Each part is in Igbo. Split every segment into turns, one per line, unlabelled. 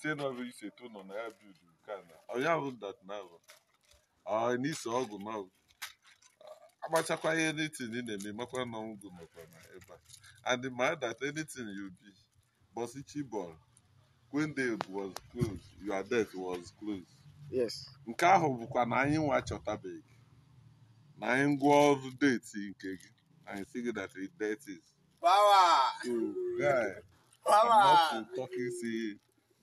sie na ọ ise eto nọ na ya bild nke a na ọya bụ dat na bụ n'ise ọgụ ma agbachakwa ihe anything ị na-eme makwa na ọgwụ nọkwa na ebe a and ma that anything you be bọsi chibọl when they was closed your death was closed yes nke ahụ bụkwa na anyị nwa chọtabeghị na anyị ngwa ọrụ deti nke gị anyị si gị that it death is
power
so guy
power I'm not
talking see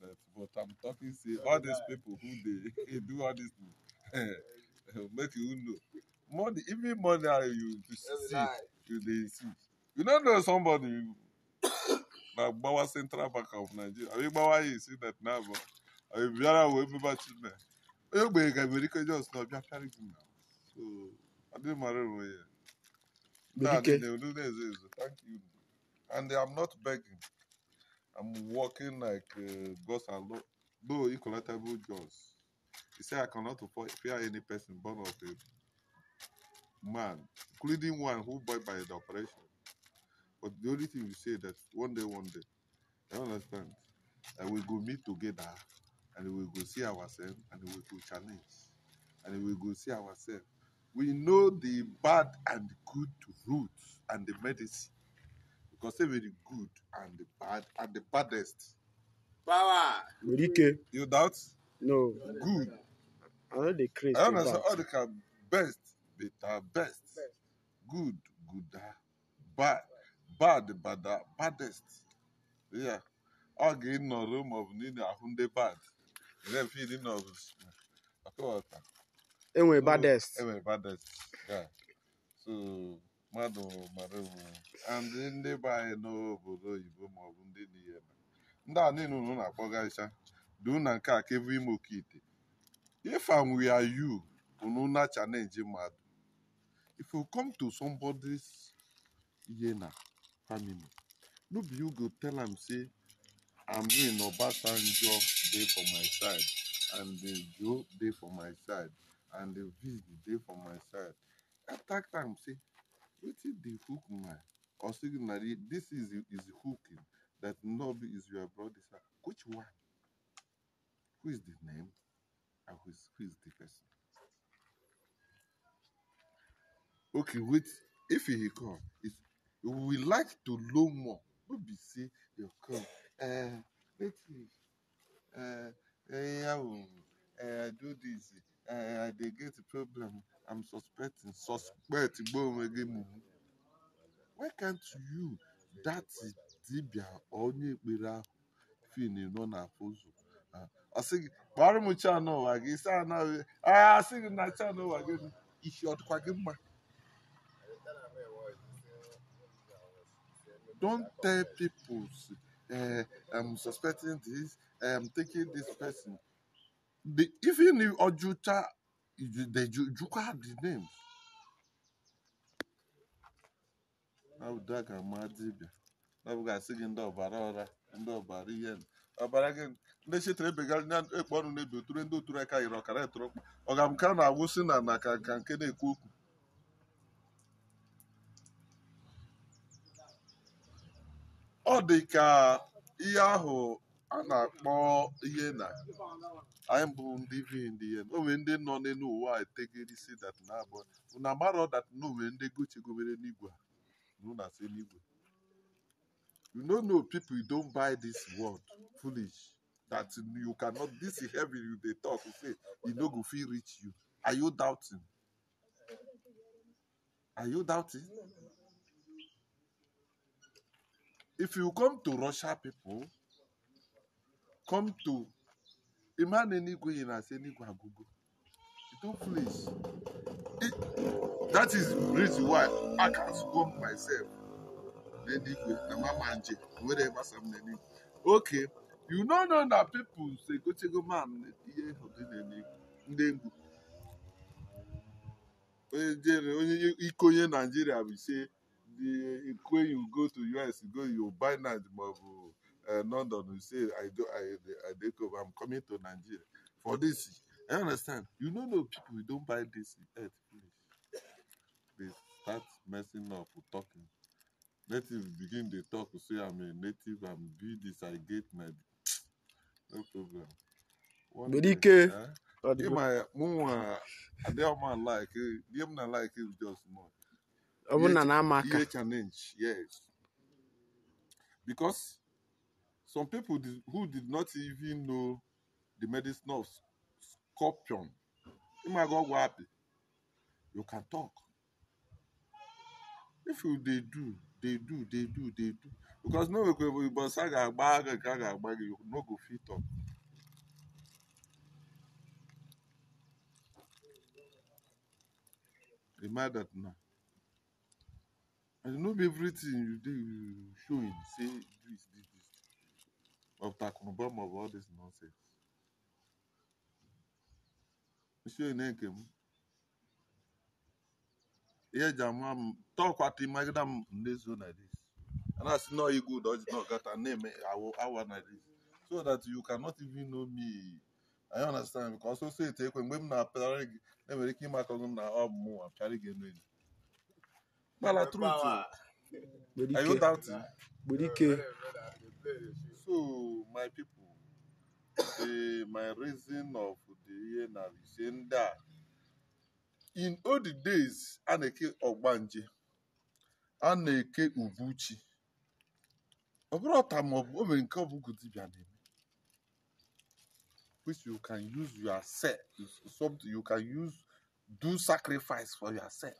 left. But I'm talking, say, all these people who they do all this, eh, make you know. Money, even money you to see, you they see. You don't know somebody, you, like Bawa Central Bank of Nigeria. I mean, Bawa, you see that now, but I mean, Biara will be back in there. You make America just not be carrying now. So, I didn't marry way. Oh, Thank you. And I'm not begging. I'm working like uh, gods are low, low incollaptible jaws. He said, I cannot fear any person born of a man, including one who died by the operation. But the only thing we say that one day, one day, I understand, and we go meet together, and we go see ourselves, and we go challenge, and we go see ourselves. We know the bad and good roots and the medicine because say very good and the bad and the baddest. Power. Merike. You doubt? No. Good. I know the crazy. I say. all the can best, better, best. best. Good, gooder, bad, bad, badder, baddest. Yeah. All in the room of Nina Hunde bad. Then feeding of
Enwe baddest.
Enwe baddest. Yeah. So mmadụ mara ewu ndị be anyị n'obodo oyibo maọbụ ndị dị niile ndị a niile unu na-akpọgasịcha dị na nke a kevu ime oke ite if am we are you unu na challenge mmadụ if you come to somebody's yena family no be you go tell am say amin obasanjo dey for my side and the joe dey for my side and the viz dey for my side attack am say Wetin dey hook my or signal this is is hooking that love is your brother. Which one? Who is the name and who is, who is the person? Okay, wait. If he come, it we like to know more. Don't be say you come. Uh, let me. Uh, uh, I do this. Uh, eh, they get a problem. I'm suspecting. Suspect Why can't you? That is dibia Only ekpere ahụ fin nọ na pozu kpọrọ m chan ụwa gị si anaghị agha sị gị na chan ụwa gị isi ọdịkwa gị mma don't tell people uh, I'm suspecting this I'm taking this person the, even if Ojuta. they Juka have the name. Ọ ga-asị gị ndị ọbara ọra, ndị ọbara ihe ọbara gị ndị chetere ebegara nya ekpe ọnụ na-ebi ndị oturu aka yiri ọkara etoro ọga m ka na-agwụsị na na ka nke na-ekwu okwu ọ dị ka ihe ahụ a akpọ ihe I am born living in the end. ndị when they ya they know why. nọ n'elu ụwa say that now. But no matter that no, when they go, n'igwe go si n'igwe you no You know no people you don't buy this word foolish that you cannot this heaven you dey talk you say you know. go feel rich. you are you doubting are you doubting if you come to russia people come to a man in Igwe in as any Guagugo. it. don't flinch. that is the reason why I can scope myself. Then Igwe, the Mamanje, whatever some name. Okay. You know, now that people say, go to go, ma'am, yeah, Ndengu. Onye iko onye Nigeria will say, the, when you go to US, you go, you buy Nigeria. Eh, London, you say, I go, I, I take over, I'm coming to Nigeria for this. I understand. You know, no people, we don't buy this earth please, They start messing up with talking. Natives begin the talk, say, I'm a native, I'm be this, I get my. No problem. But day, eh? my I don't like it. don't like it just more. Yes. Because some people did, who did not even know the medicine of scorpion my God, imagogwapi you can talk if you they do they do they do they do because no go ibosa ga agba aga ga ga you no go fit talk. a that now. and no be everything you do, you show it, say do this this of the of all this nonsense. Monsieur Nekem, here Jamam talk what the Magadam Nezu like this. And I see no you good or not got a name, I want like this. So that you cannot even know me. I understand because so say take when women are parag, never came back on them now more. I'm carrying oh, it. But I truth. I don't doubt it. But he So, my people, the, my reason of the year is in that in all the days, Aneke Ogbanje, eke Ubuchi, which you can use yourself, something you can use, do sacrifice for yourself.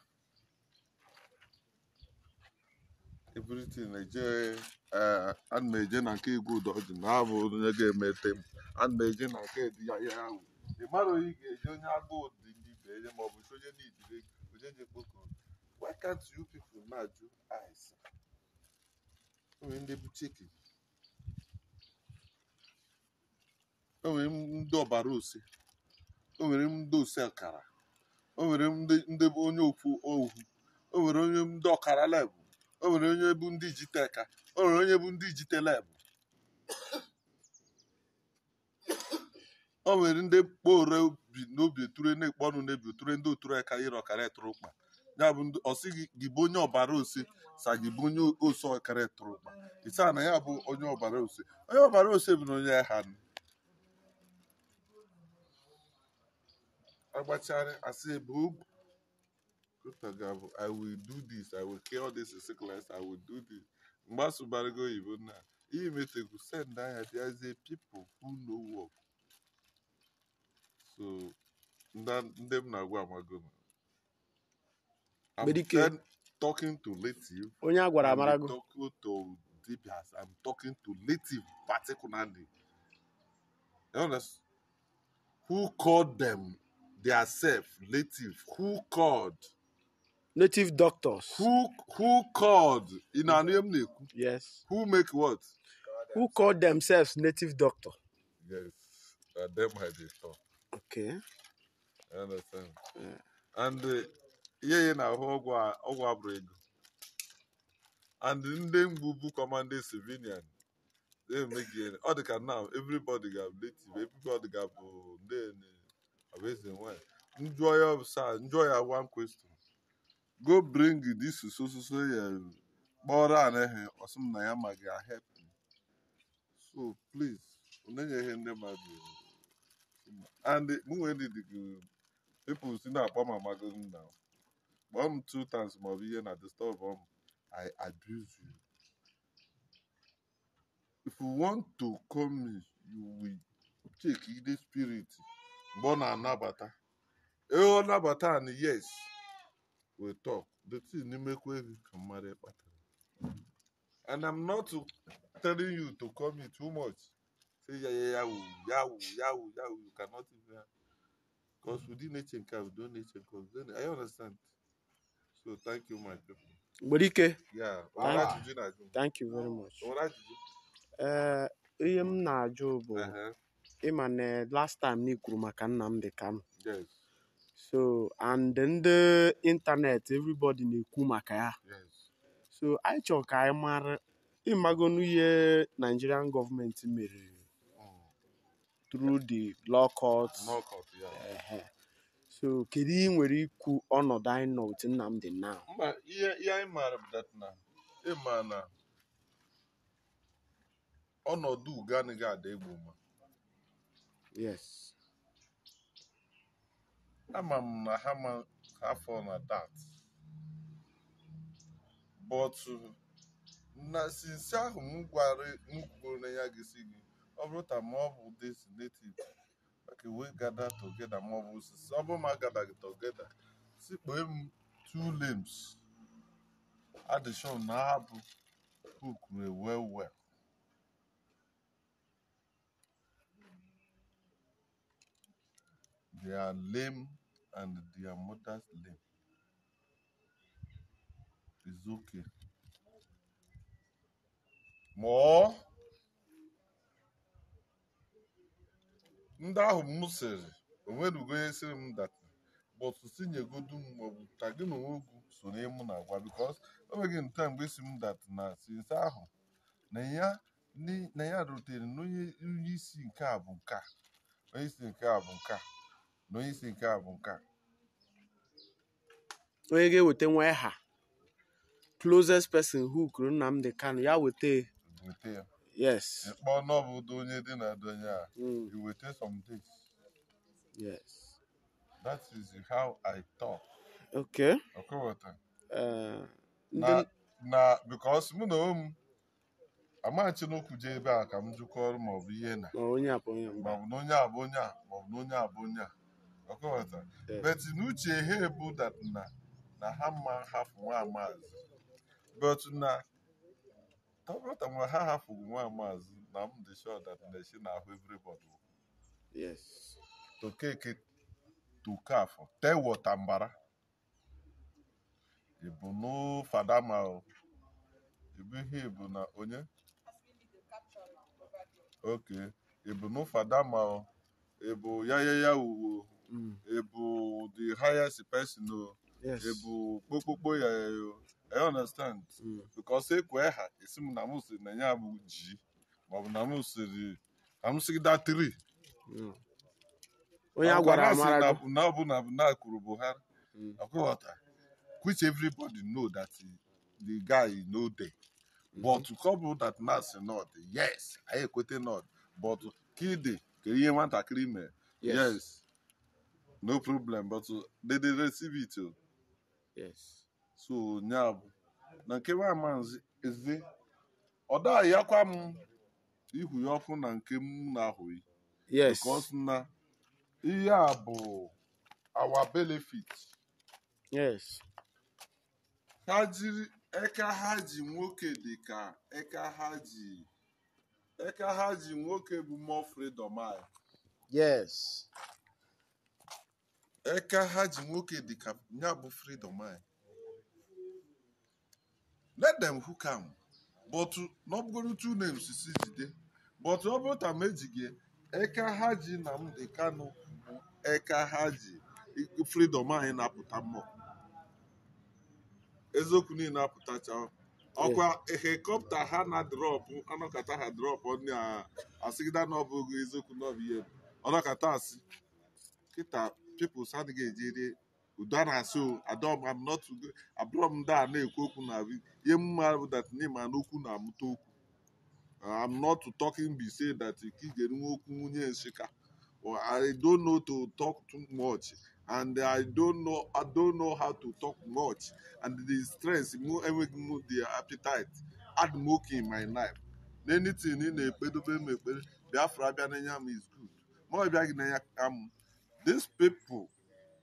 everything eje eh, ana na eje na nke igwe udoji na abụ onye ga-emete eme m ana na eje na nke dị ya ya ahụ ị mara onye ga-eje onye agụụ dị gị beenye ma ọ bụ onye na-ejire onye na-ekpoko why can't you people na-ajụ ice onwe ndị bụ chicken onwere ndị ọbara ose onwere ndị ose ọkara onwere ndị bụ onye okwu ohu onwere onye ndị ọkara leb o nwere onye bụ ndị jiteka o nwere onye bụ ndị jitelebụ o nwere ndị kpore bi n'obi oture na-ekpe ọnụ n'ebi oture ndị oture aka ire ọkara tụrụ mkpa ya bụ ọ sị gị bụ onye ọbara ose sa gị bụ onye ose ọkara tụrụ ụkpa ịsa na ya bụ onye ọbara ose onye ọbara ose bụ na onye agha agbachara asị bụ I will do this. I will cure this sickness. I will do this. Mbasu Barigo Ibuna. Imeteku send I as the people who know work. So, them na go magona. I'm talking to native. Onya gwara amarago. Talking to DPS. I'm talking to native particularly. You understand? Who called them? They are self, native. Who called? native doctors. Who who called in our name?
Yes. Who make what? Who called themselves native doctor?
Yes, uh, them had it talk. Okay. I understand. Yeah. And uh, yeah, na ogwa ogwa And then Bubu commanding civilian. They make it. All the can now everybody got native. Everybody got then. Uh, Amazing one. Enjoy yourself. Enjoy your one question. go bring dis so so so ya kpọrọ anaghị ọsị m na ya ma ga help me so please ihe ndị mmadụ and mụnwe ndị gị people si na-akpọ m amago m na kpọọ m two times ma ọ bụ ihe na disturb m i abuse you if you want to call me you will check the spirit mgbe ọ na-anabata ee nnabata nabata and yes we talk the thing imekwe gị ka mmadụ kpatara and i'm not telling you to call me too much say ya ya yawu yawu yawu yawu you cannot even because within nature nke we don nature cause then i understand so thank you my people.
nwere ike thank you very much ee eh, ihe m na-ajụ bụ uh-huh. ịma na last time na ikwuru maka Nnamdi Kanu so and ndị ịntanetị everybody na-ekwu maka ya so anyị chọrọ ka anyị mara ịmagonu ihe Nigerian gọọmenti mere hmm. through the law court so kedu ị nwere ikwu ọnọdụ anyị nọ otu Nnamdi now
ihe anyị maara na ịma na ọnọdụ ugo anaghị ada egwu ma ama m na ha afọ na dat but na sinsi ahụ m gwara m kwuru ya gịsi gị ọ bụrụ ta ma ọ bụ this native ka we gada togeda ma ọ bụ osisi ọ bụrụ ma gada gị togeda sikpee m two limbs adishon na-abụ kukuru ewe well they are lame and their mother's name. It's okay. More. ndị ahụ m sịrị onwerugo onye sịrị m data bọtụ tinyegodu m maọbụ ka gị na onwe ugwu so na ịmụ na agwa bikos o nweghị nta mgbe esi m data na sinsa ahụ na ya na ya rutere na onye isi nke a bụ nke a onye isi nke a bụ nke a na onyeisi nke a bụ nke a
onye ga-eweta nwa ha closest person who kwuru Nnamdi Kanu ya weta ya yes
ịkpọ n'ọbụdụ onye dị na donye a iweta hmm. some days yes that is how I talk okay ọkọwata eh, na na because mụ na m Amachi n'okwu je ebe a ka m jụkọrọ maọbụ ihe na maọbụ na onye a bụ onye a maọbụ na onye a bụ onye a ọkọghọta but n'uche ha ebu dat na na ha mma hapụ nwa amaazị but na tọbata nwa ha hapụghị nwa amaazị na m dị sure that na esi na ahụ everybody yes okeke tukafọ tee wọta mbara ịbụ n'ụfada ma ịbụ ihe ịbụ na onye ok ịbụ n'ụfada ma ọ ebu yayaya wuwo mm. ebu the highest person o ebu kpokpokpo ya yo i understand mm. because ekwe ha esi m na m siri na ya bụ ji bụ na m siri na m siri da tri mm. onye a gwara amara na ọ bụ na na kwuru Buhari akwụghọta which everybody know that the guy no dey mm-hmm. but couple that na si nod yes i ekwete nod but kide kedu ihe nwatakịrị mee yes no problem but uh, they dey receive it o oh. yes so nya bụ na nke nwa maazi eze ọ m ihu ya ọkụ na nke m na-ahụghị yes because na ihe a bụ our benefit yes ha jiri eka ha ji nwoke dị ka eka ha ji Eka ha ji nwoke bụ mmụọ freedom anyị. Yes. Eka ha ji nwoke dịka ya bụ freedom anyị. Let them hook am. But n'ọbụgoro two names si jide. But ọ bụrụ ta m ejighị eka ha ji na m dị Kano bụ eka ha ji freedom anyị na-apụta mmụọ. Eziokwu niile apụtachawa. ọkwa helikọpta ha na drọpụ anọkata ha drọpụ ndị asịgịda na ọbụghị eziokwu n'ọbụ ihe bụ ọnọkata asị kịta pipụls adịghị ejere udo a na-asị adọm am nọtụ abụrọ m ndị a na-ekwu okwu na ihe mma bụ dat ma n'okwu na-amụta okwu am nọtụ talking be say dat ka ị ga-enwe okwu nwunye nsika I don't know to talk too much and I don't know I don't know how to talk much and the stress move enweghị m the appetite add milk in my life anything ị na-ekpedobe mepere Biafra abịa is good more ọ bịaghị n'anya um, these people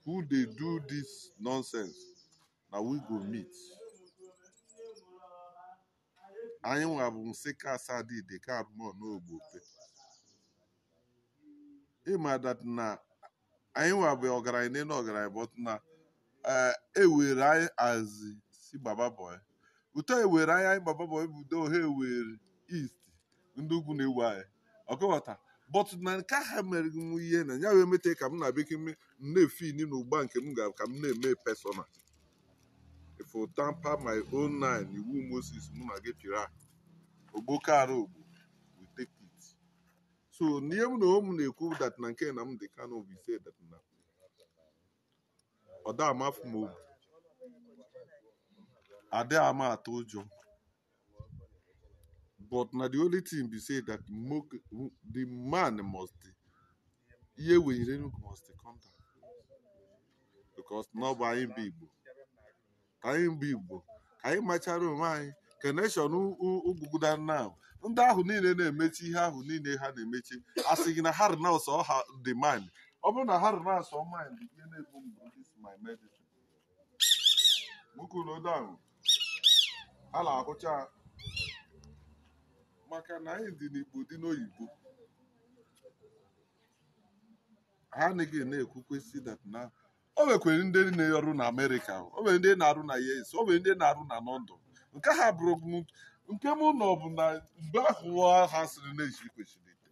who dey do this nonsense na we go meet anyị nwa bụ nsị ka asadide ka abụmọ n'ogbope dat na anyị nwa bụ ọgaranya n'elu ọgaranya but na eh, ewere anyị azị si baba boy uto ewere anyị anyị baba boy bụ udo ha ewere east ndị ugwu na-ewu anyị ọkọwata but na nke ha mere m ihe na ya wee mete ka m na bekee m na-efini na ụgba nke m ga ka m na-eme pesona if tampa tamper my own nine iwu Moses mụ na gị pịra ogbokaara ogbo so n'ihe m na ụmụ na-ekwu dat na nke dị Kanu bụ ise dat na ọ da ama m obi adị ama atụ ụjọ but na the only thing be say that the man must ihe were Enugu
must come down
because na ọ bụ anyị bụ Igbo anyị bụ Igbo ka anyị machara onwe anyị ka nation ugwuguda now ndị ahụ niile na-emechi ihe ahụ niile ha na-emechi asị gị na ha renounce ọha dị mind ọ bụrụ na ha renounce mind ihe na-ebu mbụ this my medicine nwoke ulodo ahụ ha na-ahụcha maka na anyị dị n'igbo dị n'oyibo ha anaghị na-ekwukwesị that na o nwekwere ndị na-arụ na amerịka o nwere ndị na-arụ na u.s. o nwere ndị na-arụ na london nke ha bụrụ nke m nọ bụ na mgbe ahụ ha sịrị na-eji kwesịrị ite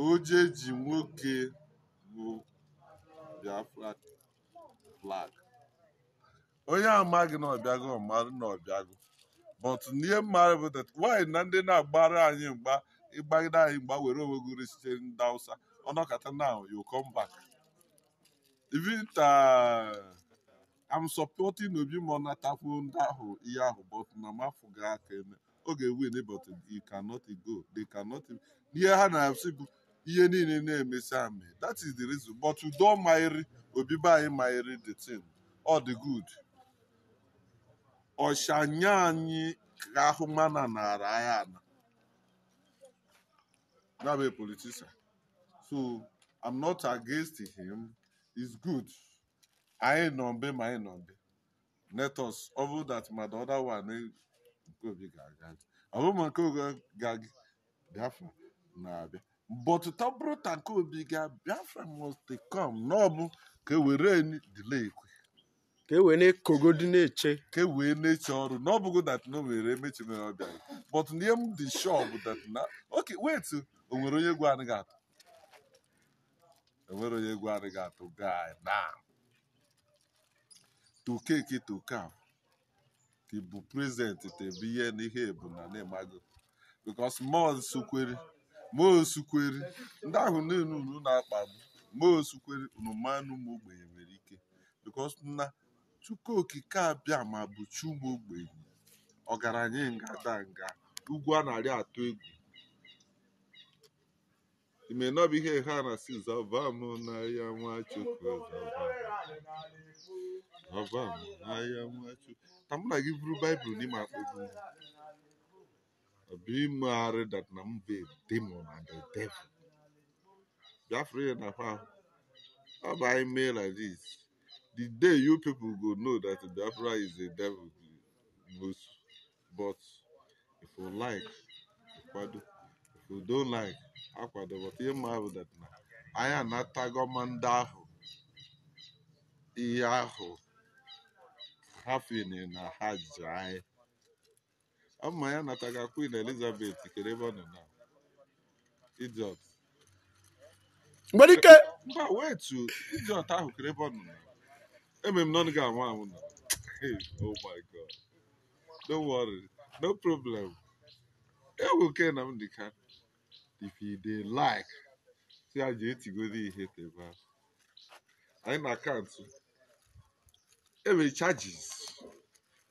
oje ji nwoke bụ Biafra flag onye amaghị na ọbịago marụ na ọbịago but n'ihe mmadụ bụ that why na ndị na-agbara anyị mgba ịgbagide anyị mgba were onwe gị resite ndị awụsa ọnọkata now you come back Victor, uh, I'm supporting Obi Monatafu ihe ahụ but Namafuga can ga win it, but he cannot go. They cannot. Near Hana, ihe niile na-emesi ame that is the reason but udo maịrị obibe anyị maịrị the thing all the good ọshanya anyị ka ahụ mana nara anyị ana that be politician so i'm not against him is good anyị mbe ma anyị let ọ bụrụ that ma other one nke obi ga-aga ọ bụrụ ma nke biafra na-abịa but obi ga biafra must come n'ọbụ ka e were delay ka e wee eche ka e wee ọrụ but m dị sure bụ wait o nwere onye egwu anaghị enwere onye egwu anyị ga atụ gaa na tokeke tokaf tebụ prezentị tebụ ihe na ihe ebu na na-emago bikos mosukweri mosukweri ndị ahụ niile unu na-akpagbu mosukweri unu manụ ụmụ ogbenye nwere ike bikos na chukwu okike abịa ma bụ chi ụmụ ogbenye ọgaranya nga da nga ugwu a na atụ egwu It may not be here, Hannah says, Avam, I am what you
call Avam, na am
what you. I'm like, you brew Bible, Nima. Be married that number demon na the devil. na How mail like this? The day you people go know that Biafra is a devil, most. But if you like, if you don't like, akwadobata ihe mma ahụ dị na anyị anatago ma ndị ahụ ihe ahụ ha fini na ha ji anyị ma ya nataga Queen Elizabeth kere ebe ọ nọ na idiot nwere ike mba wetu idiot ahụ kere ebe ọ nọ na eme m nọnụ ga-anwụ anwụ na oh my god don't worry no problem ewu ke na m dịka if you dey like si eh, a ji etigoro ihe tebe anyị na akaụntụ enwere charges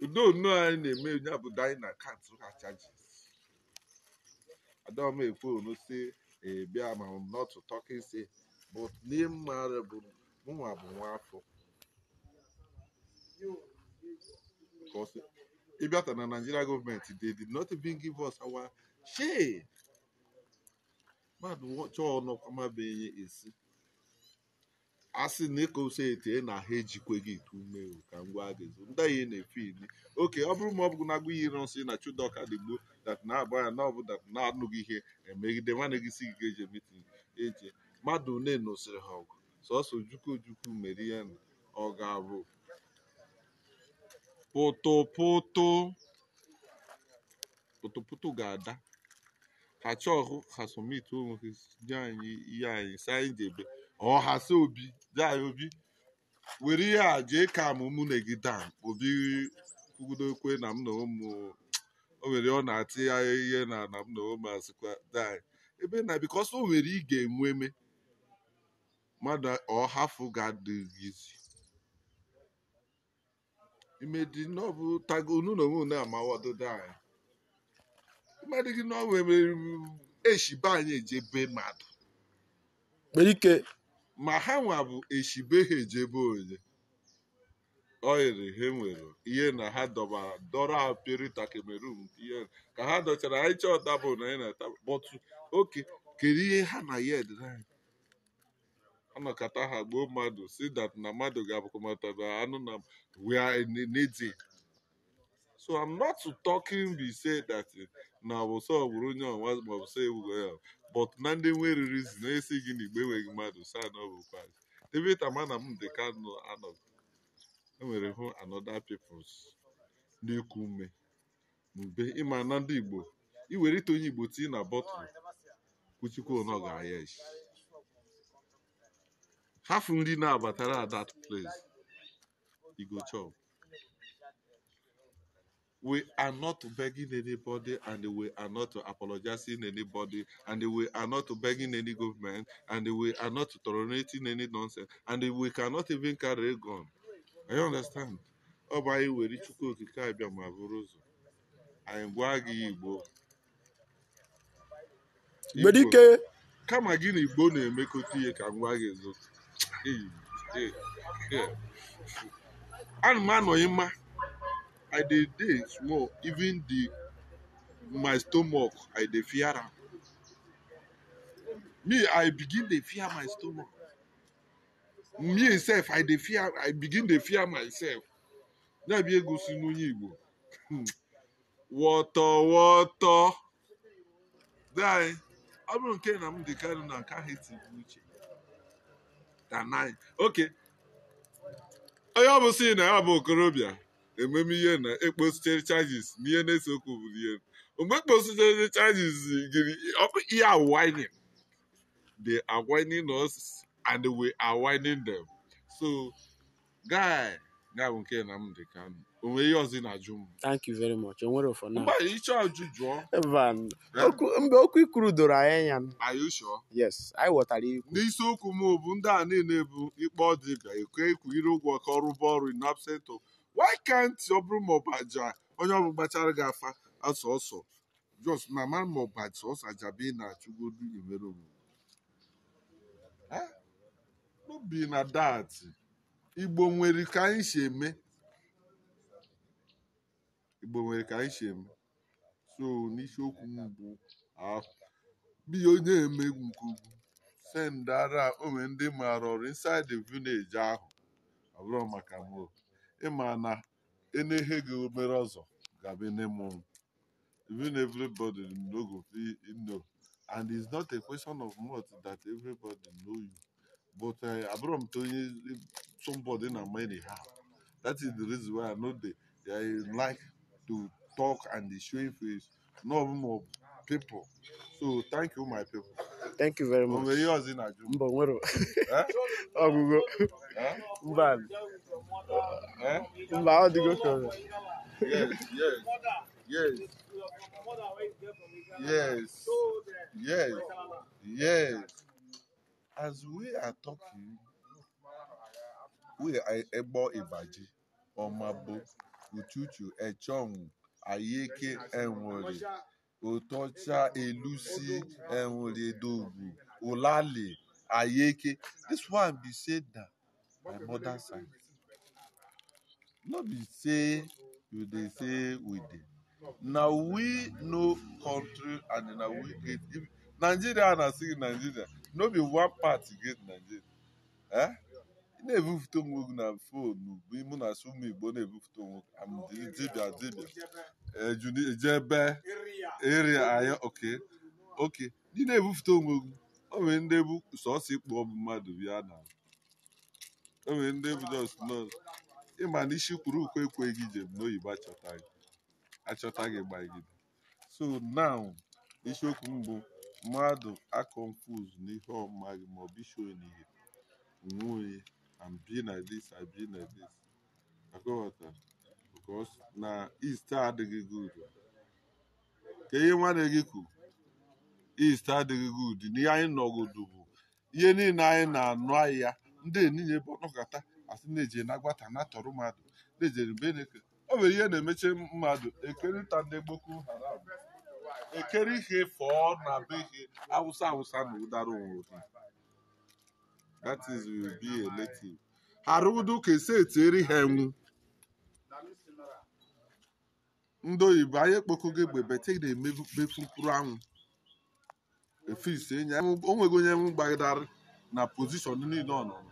udo nnu anyị na-eme onye abụda anyị na akaụntụ ha charges adọm ekwe onu si ebia ma not talking say but n'ịmma bụ mụnwa bụ nwa afọ ịbịata na Nigeria gọọmenti they did not even give us our share mmadụ ọjọọ nọkwa mabeghị esi asị na etu ị na ha ejikwe gị ite ume ka ngwa gịzi ndị anyị na-efe ili oke ọ bụrụ ma ọ bụ na agụ yiri nsị na chudọka dị gboo dat na abụ ya na ọ bụ dat na anụghị ihe emegide nwanne gị si gị ga-eje mitin eje mmadụ ne nosiri ha ọgụ sọsọ ojukwu ojukwu mere ihe na ọ ga abụ pụtụpụtụ pụtụpụtụ ga-ada kachọhụ ha somit onwe nye anyị ihe anyị si anyị debe ọ ha obi dị anyị obi were ihe a jee ka m mụ na obi kwugidokwe na m na ụmụ o nwere ọ na-atị ya ihe na na m na ụmụ asịkwa dan ebe na bikọs o nwere ị ga-enwe eme mmadụ ọhafụ ga-adịghịzi imedi n'ọbụ tago unu na onwe unu amawadodo anyị mmadụ gị na nwere eshibe anyị ejebe mmadụ ike ma ha nwa bụ eshibe ha ejebe onye ọ yiri ha nwere ihe na ha dọbara dọrọ ha perita Cameroon ihe ka ha dọchara anyị chọọ tabụl na anyị na bọtụ oke kedu ihe ha na ya anyị anọkọta ha gbuo mmadụ si dat na mmadụ ga-abụkọmata anụ na we need so i'm not talking be say that eh, na ọbụsọ ọbụrụ onye ọnwa ma ọbụsọ ewugo eh, but na ndị nweriri zi na-esi gị na igbe enweghị mmadụ sa na ọbụkwa david amana m dị ka nọ enwere hụ another peoples kume mme ume mgbe ịma na ndị igbo iwerite onye igbo tii na bọtụlụ kwuchikwa ọ ga-ahịa nri na-abatara at that place e chop we are not begging anybody and we are not apologizing anybody and we are not begging any government and we are not tolerating any nonsense and we cannot even carry a gun. I understand. Ọ bụ anyị were Chukwu Okike abịa ma bụrụ ụzọ. Anyị gwa gị Igbo. Gbedike. Kama gị na Igbo na-emekọta ihe ka ngwa gị zụ. Ana m anọghị mma i dey dey small even the my stomach i dey fear am me i begin dey fear my stomach me sef i dey fear i begin dey fear myself ya bụ egosi n'onye igbo wọtọ wọtọ dai ọ bụrụ nke na m dị karị na nke ahụ etigbu uche danai oke onye ọ bụ si na ya bụ okorobịa ememe ihe na ekposichere charges na ihe na-ese okwu bụ ihe mgbe ekpositere charges gịrị ihe awining they are whining us and we are whining them so guy ya bụ nke dị ka onwe ihe ọzọ na-ajụ m thank you very much
enwere for now mgbe
ịchọ ajụ jụọ
mgbe okwu ikuru doro anyị anya
are you sure yes anyị wọtara ikwu n'isiokwu m bụ ndị a niile bụ ikpe ọdịbịa ekwe ikwu ire ụgwọ ka ọrụ bụ ọrụ in absent of why can't ọ bụrụ ma ọbaja onye ọbụla gbachara gị afa asọ ọsọ jos na mara ma ọbaja ọsọ ajabe ị na-achụgodu emere omume n'obi na dat igbo nwere ka anyị si eme igbo nwere ka anyị si eme so n'isiokwu m bụ ah, biya onye emegwu nke ugwu sendara onwe ndị maara ọrụ inside the village ahụ ọ bụrụ maka m ịma na ene gị mere ọzọ ga-abụ even everybody no go fit know and it's not a question of much that everybody know you but eh, abụrụ m onye somebody na many ha that is the reason why i know they, like to talk and dey show face no more people so thank you my people thank you very much ọ bụ ihe na-ajụ mbọ nwere eh? ọgwụgwọ eh? mba Eh? Mba, how do Yes,
yes, yes. Yes, yes,
As we are talking, we are a Ebo Ibaji, Omabo, Ututu, Echong, Ayeke, Enwori, Otocha, Elusi, Enwori, Dogu, Olale, Ayeke. This one be said that my mother side. no be say you dey say we dey na we no country and na we get nigeria na still nigeria no be one party get nigeria eh na-ebupụta onwe gị na foonu bụ ịmụ na sumu igbo na-ebupụta onwe gị dibia dibịa ejebe eh, eria anya oke oke ndị na-ebupụta onwe gị o nwere ndị bụ sọsọ ịkpọ mmadụ bịa na o nwere ndị bụ ịma na isi kwuru ukwe ekweghị njem n'oyibo achọta gị gbagide so now isiokwu mbụ bụ mmadụ akọnfuz n'ihe ọmaghị maọbụ isi onihe onwe and be na this and be na this akọwata because na east adịghị gud. ka ihe nwanne gị kwuru east adịghị gud n'ihe anyị nọgodu bụ ihe niile anyị na-anụ ahịa ndị eninye bụ ọnọkọta asị na eji na gwata na tọrọ mmadụ na-ejere beneke ọ nwere ihe na emechi mmadụ ekerịta ndị Boko Haram ekere ihe fọọ na be ihe awụsa awụsa na ụdara onwe ha that is will be a native arụdo ka esi etieri ha enwu ndị oyibo anyị gị egbe bete na-emebefu mkpụrụ anwụ ise enyi onwego onye enwu gbagidara na pozishọn niile ọ